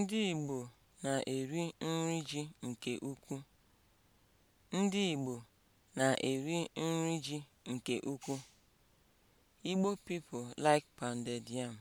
Ndị Igbo na-eri nri ji nke ukwuu. Ndị Igbo na-eri nri ji nke ukwuu. Igbo people like pounded yam.